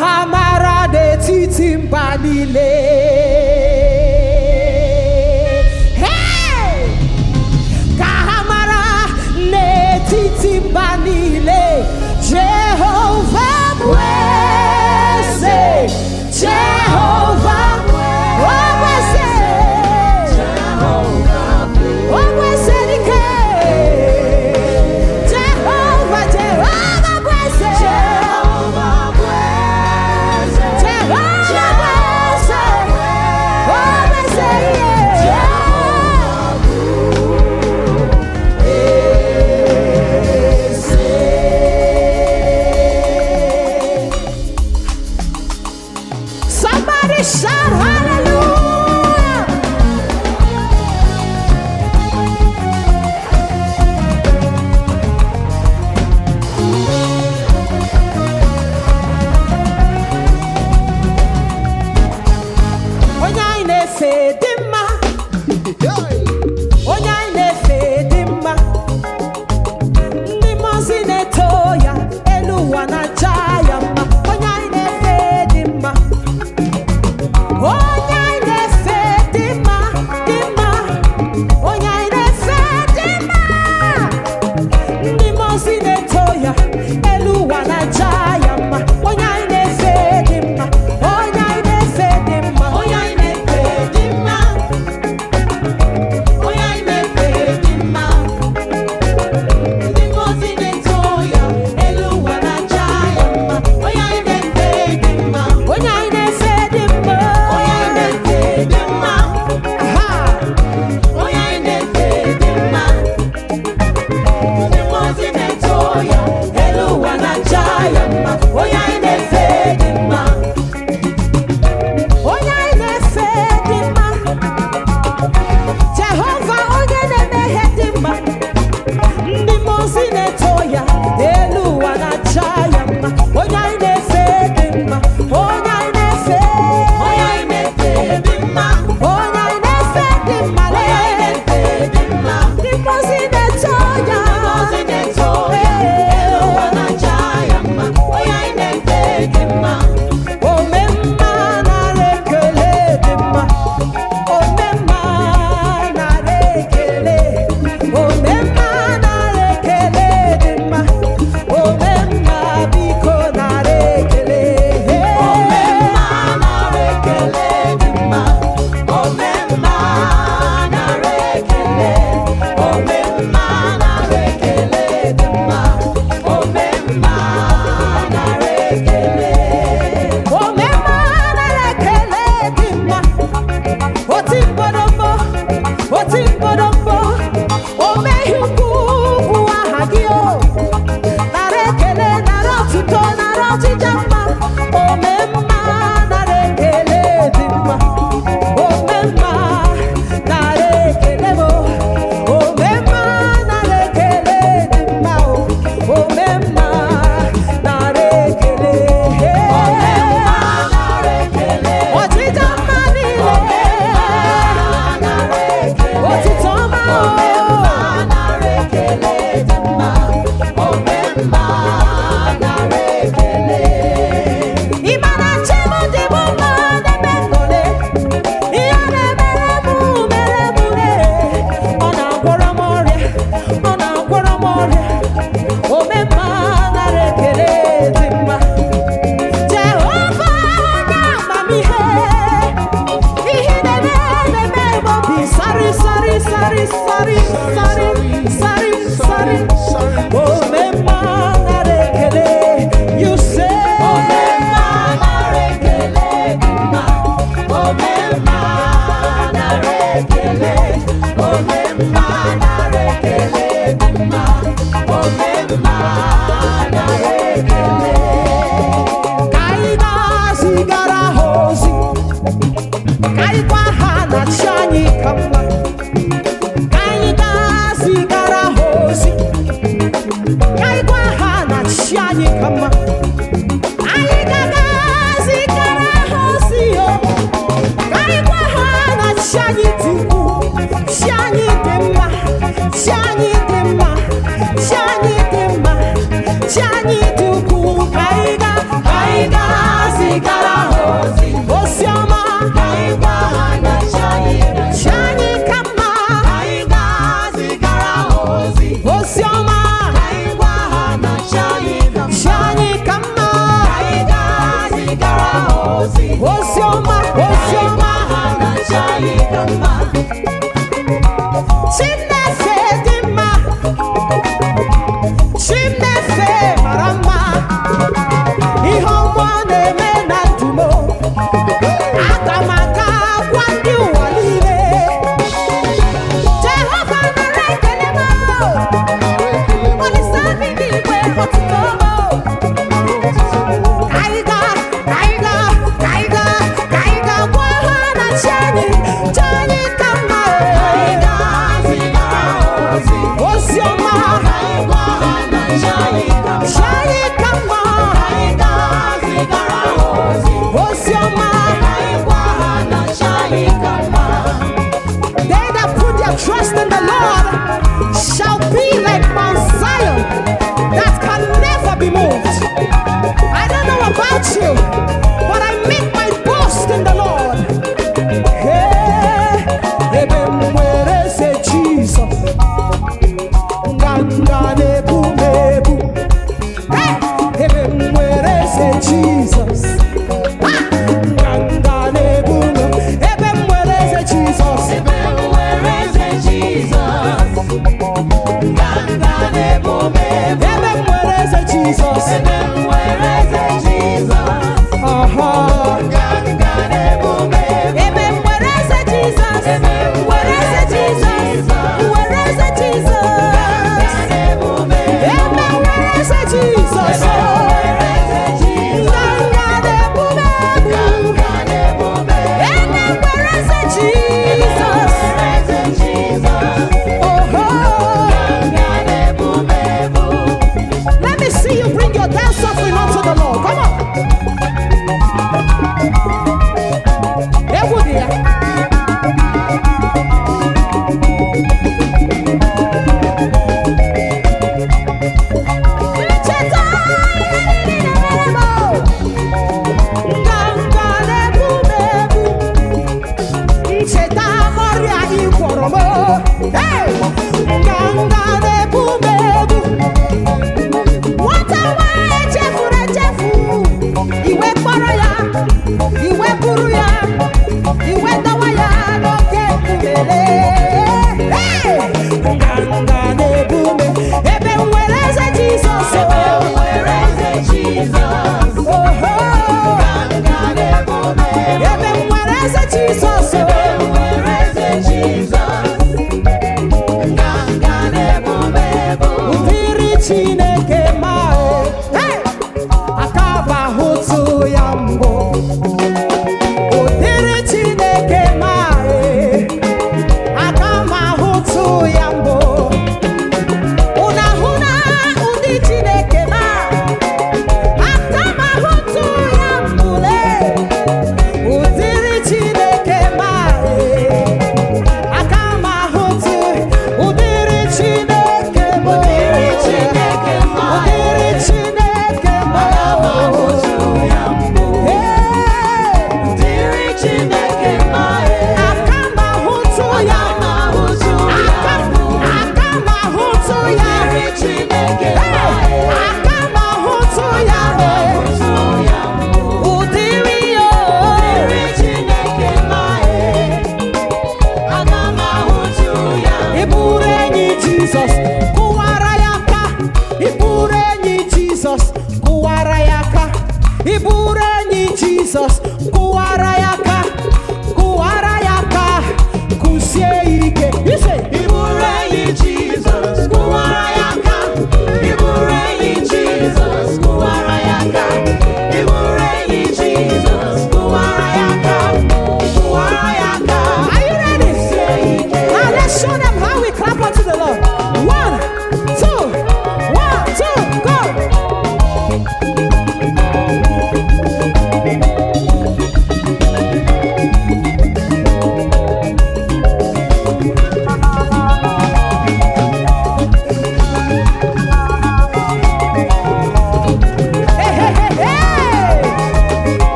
ha mara n'etiti mba niile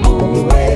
Always.